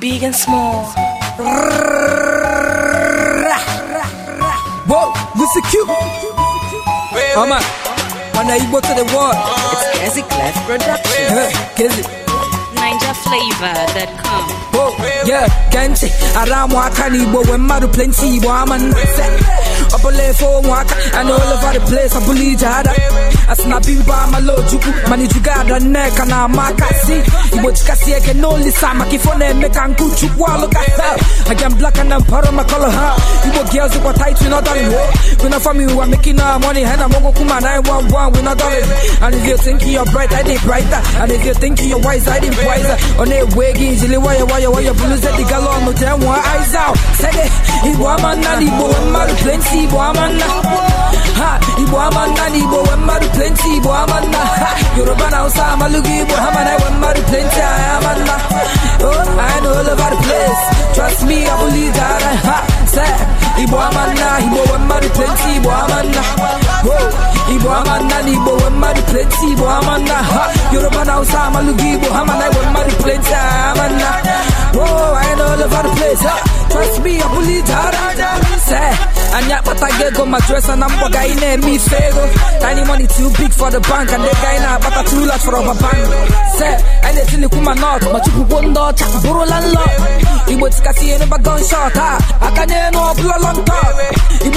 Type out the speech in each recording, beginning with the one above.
big and small. Whoa, Mr. Q. Mama, when I go to the world, it's Cassie Class Production. Cassie. NinjaFlavor.com. Whoa, yeah, Kenchi, around Wakani, but when Maru plenty, woman. Up a lane for one and all over the place. I believe jada. As na bimba malo juku mani jugada neck and amaka see. Ibo eke nolisa maka makifone na nkuchu kwa look at that. I black and I'm part of my color huh. Ibo girls who are tight we not darling ho. We not family we making our money and I'm gonna 911 we not And if you think you're bright I did brighter. And if you think you're wise I did wiser. On a sede Igbo amanna nna na Igbo nwe mmadụ plenty Igbo amanna ha Igbo na Igbo nwe mmadụ plenty Igbo amanna nna ha Yoruba na Hausa Igbo ha mana mmadụ plenty anyị oh I know place trust me I believe that ha say Igbo amanna na Igbo nwe mmadụ plenty Igbo amanna ha Yoruba na Hausa Igbo ha mana mmadụ plenty anyị oh I know place obi ya bụli ije ara anyị akpatago ego ma dresa na mkpọ ga anyị na-eme ife ego tiny money too big for the bank and ga anyị na-akpata too large for ọba bank se anyị na-etilikwu ma nọt ma chukwukwo ndị ọcha bụrụla nlọ igbo tikasị ihe n'ụba gunshot a aka n'elu ọbụla long talk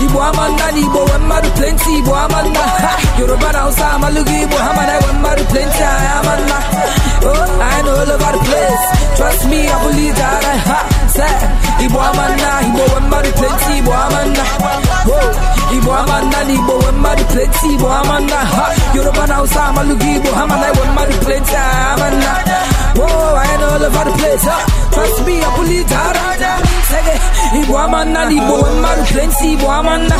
Igbo amanda na Igbo nwe mmadụ plenty Igbo amanda Yoruba na Hausa amalụghị Igbo ha mana enwe mmadụ plenti anyị amanda Oh, I know all over the place Trust me, I believe that I ha Say, Igbo amanda Igbo nwe mmadụ plenty Igbo amanda Oh, Igbo amanda na Igbo nwe mmadụ plenty Igbo amanda ha Yoruba na Hausa amalụghị Igbo ha mana enwe mmadụ plenti anyị amanda Oh, I know all over the place Trust me, I believe that I ha Say, Igbo amanda na Igbo plenty Igbo amanna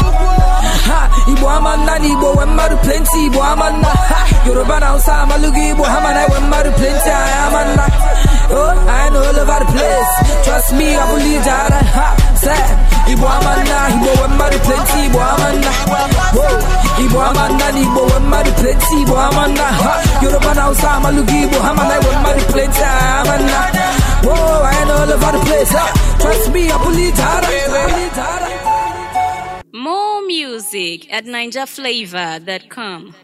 ha Igbo amanna na Igbo wee mmadụ plenty Igbo ha Yoruba na Hausa amalụghị Igbo ha mana wee mmadụ plenty anyị oh I know all over the place trust me I believe that ha say Igbo amanna Igbo wee mmadụ plenty Igbo amanna oh Igbo amanna na Igbo wee mmadụ plenty Igbo amanna ha Yoruba na Hausa amalụghị Igbo hamana mana wee mmadụ plenty anyị amanna oh I know all over the place ha trust me I believe that music at come